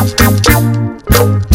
akakam ha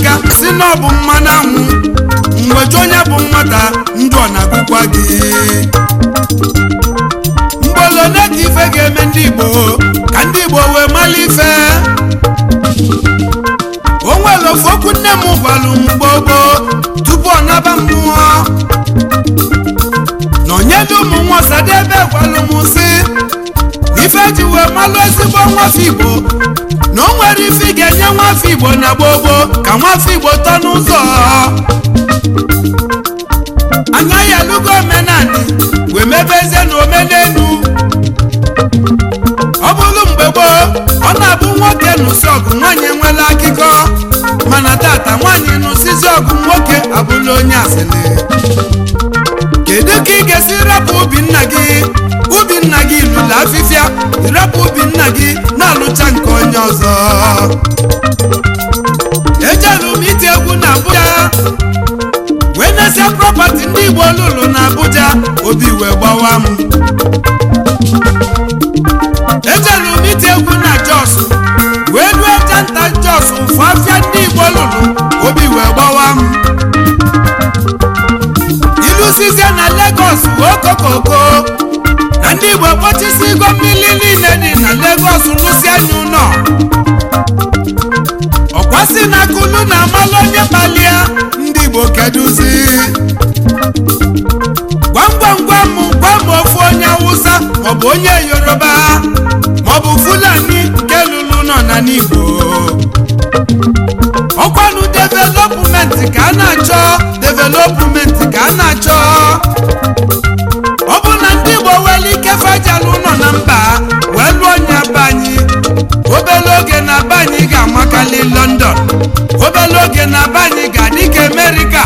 n'aka si na bụ mmanụ anwụ mgbeji onye bụ nwata ndụ ọ na-agụkwa gị mgbolo ka ife ga-eme ndị Igbo ka ndị Igbo wee mala ife o nwere okwu nne m gwalụ m gbogbo tupu ọ naba mmụọ na onye dị ụmụ nwa Ọsadebe gwalụ m sị ife ji wee malụ ezigbo nwafe Igbo na o nwere ife ga-enye nwafọ igbo na gboo ka nwafọ igbo tọ n'ụzọ agaghị alụgo omenani wee mebezie na omenelu ọ bụrụ mgbe gboo ọ na-abụ nwoke nụsi ọgụ nwaanyị enwela akụkọ mana tata nwaanyị nụsizi ọgụ nwoke abụla onye asịrị ị ga-esi rapụ ubi nna gị ubi nna gị lụla afịfịa rapụ ubi nna gị na-alụcha nke onye ọzọ ejelụ m iti egwu na Abuja wee nesịa prọpati ndị Igbo olulu na Abuja obi wee gbawa m ejelụ m iti egwu na Jos wee lụọ janta Jos mfe afịa ndị Igbo olulu obi wee gbawa Lagos okokoko na ndị Igbo kpochisigo mmiri niile dị na Lagos lụsienụ ụlọ ọkwasị na kulu na amalụ onye kpalia ndị Igbo keduzi gwam gwam gwam gwam ofu onye Awụsa maọbụ onye Yoruba maọbụ Fulani nke lụrụ nọ na n'Igbo ọkwanụ development ka a na-achọ development ka a na-achọ ọ bụ na ndị Igbo nwere ike nọ na mba wee lụọ nye be anyị obele na be ga-amakarị London obele oge na be ga-adị ka America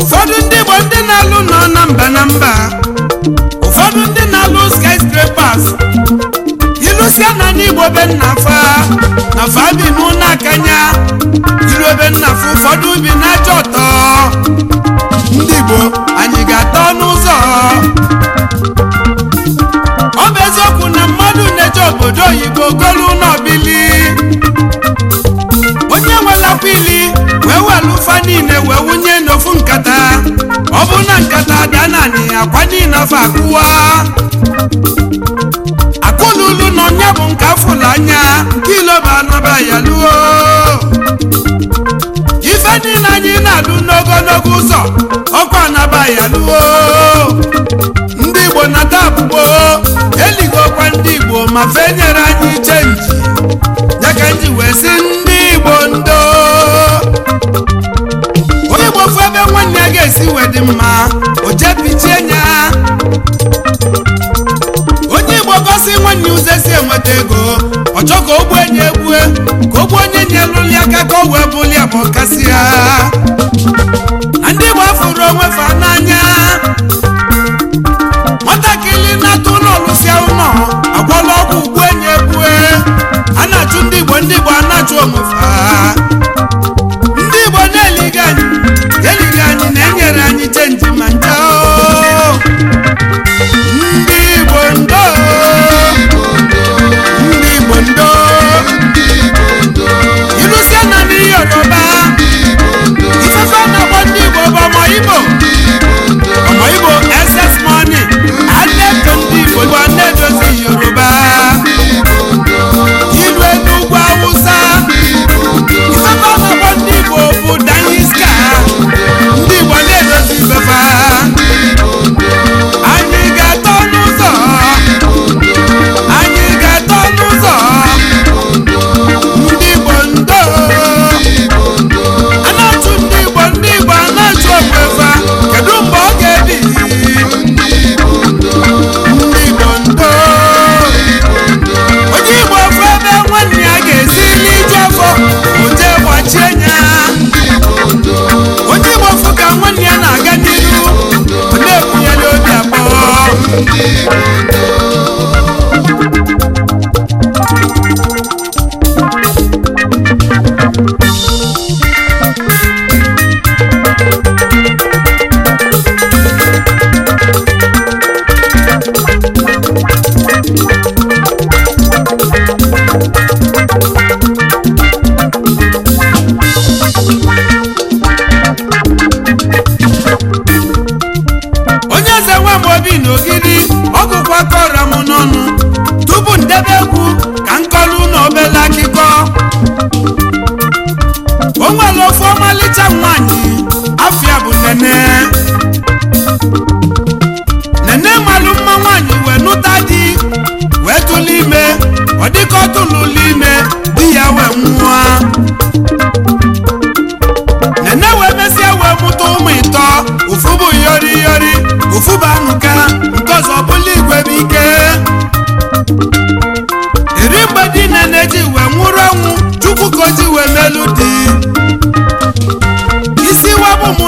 ụfọdụ ndị Igbo ndị na-alụ nọ na mba na mba ụfọdụ ndị na-alụ skyscrapers ilusia na ndị Igbo be nna fa na fa bi n'ụlọ akanya ebe nna fụ ụfọdụ bi na-acha ọtọ ndị Igbo anyị ga-ata n'ụzọ ọ bụ eziokwu na mmadụ na obodo oyibo golu n'ọbili onye nwela ili wee welu ụfa niile wee wunye n'ofu nkata ọ bụ na nkata daa naanị akwa niile afọ akụwa akụlulu na onye bụ nke afụla anya nke ilobanụba ya luo niile anyị na-alụ n'ogologo ụzọ ọkụ anabaghị alụwo ndị igbo nata abụgbo eligokwa ndị igbo ma fe nyere anyị nji ya ka nji wee sị ndị igbo ndo onye igbo ofu ebe nwanne ya ga-esi wee dị mma o jepichie ya onye igbo gosi nwanne ụzọ si enweta ego ọ chọ ka o gbuo enyi egbue ka o gbuo aka wu b olia bụ agha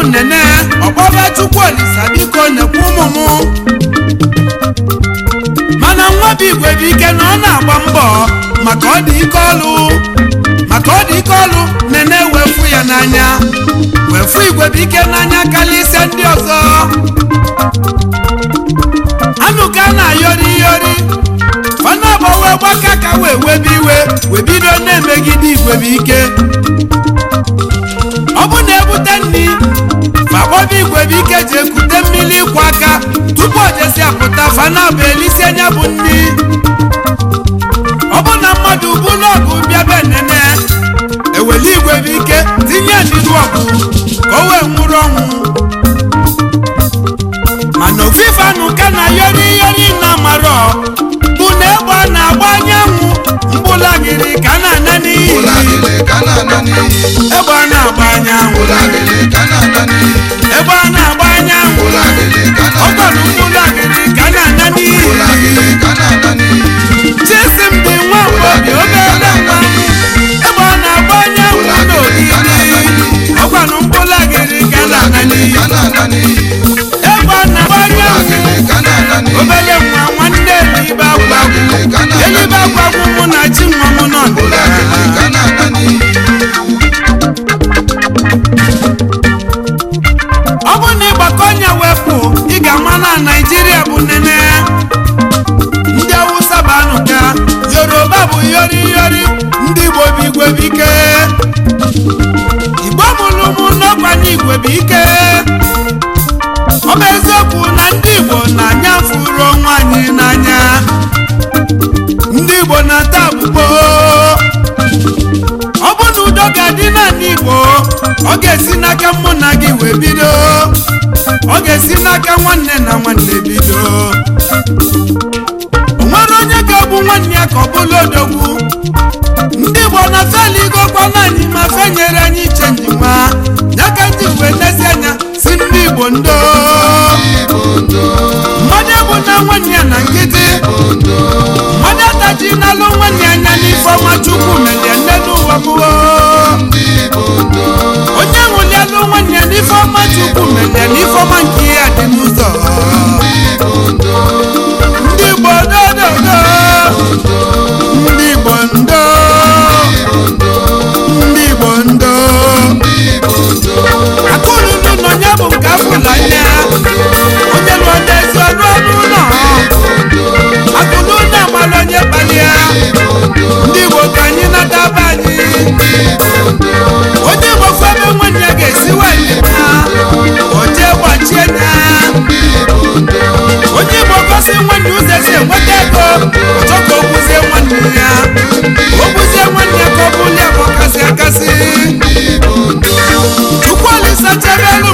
nene ọkpọba chukwu olisa biko nekwu ụmụ ụmụmụ mana bụ igwe bụ ike na ọ na-agba mbọ maka ọ dị ike ọlụ maka ọ dị nene wefu ya n'anya wefu igwe bụ ike n'anya karịa ise ndị ọzọ anụka na-ayọri iyori na agbawe gbaka ka wee webe iwe wee emegide igwe bụ ike si apụta fana bụ elisi anya bụ ndị ọ bụ na mmadụ bụ n'ọgụ bịa be igwe bụ ike tinye n'iru ọgụ ka o wee nwụrụ ọnwụ mana ofufe na yori yori na bụ na egbe na-agba anyanwụ mbụlagịrị ka egbe na ọ ga-esi n'aka mụ na gị wee bido ọ ga-esi n'aka nwanne na nwanne bido o nwere onye ga-abụ nwanne ya ka ọ bụla odogwu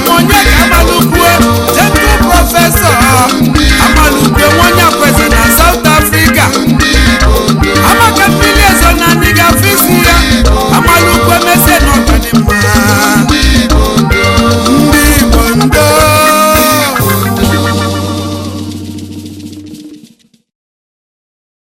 onye ka amalụkwuo jetu prọfesọ